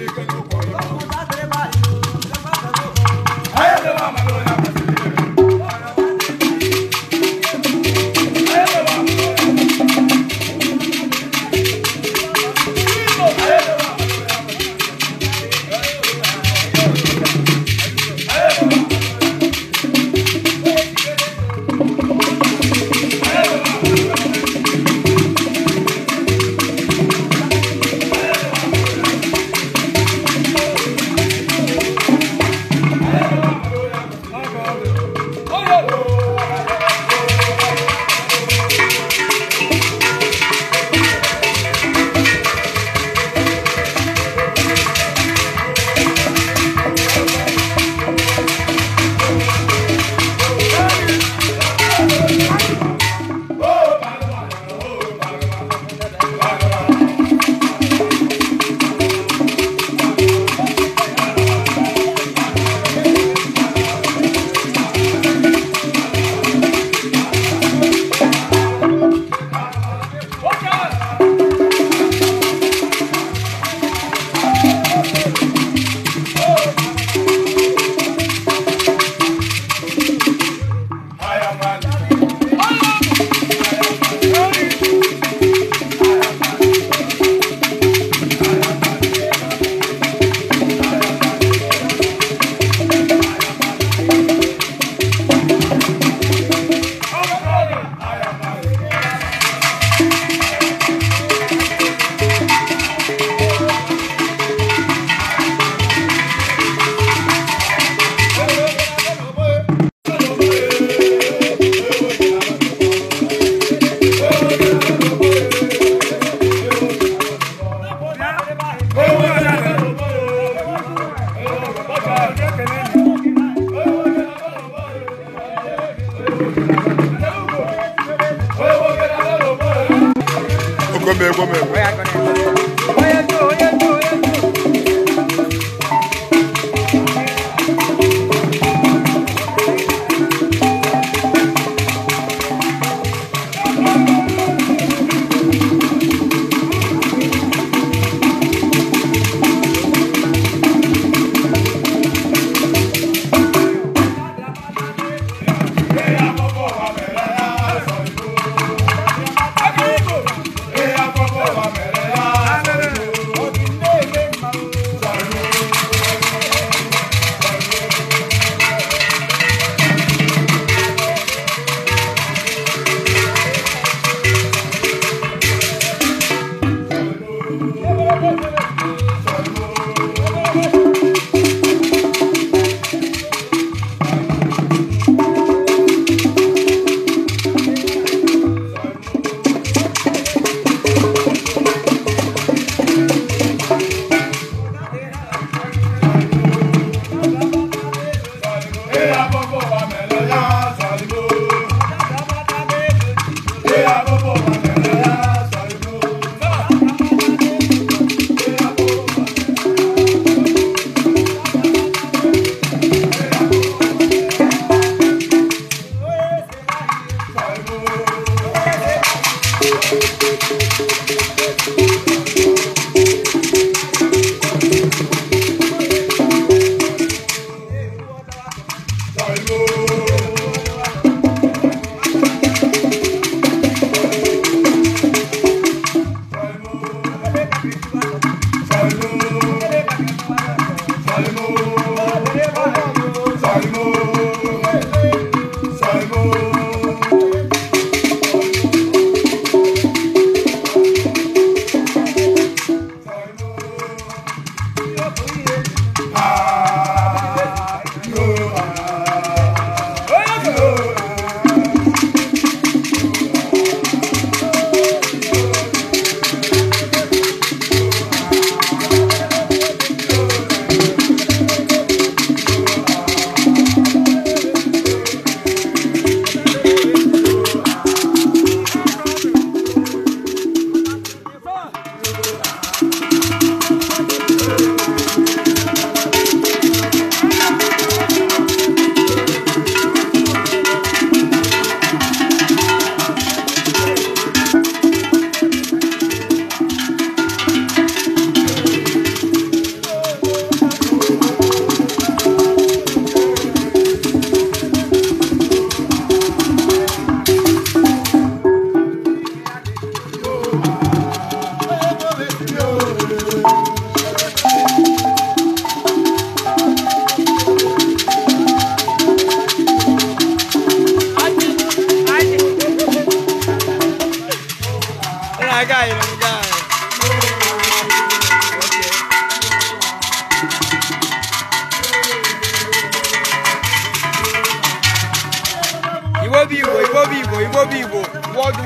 你跟着我呀 We're gonna.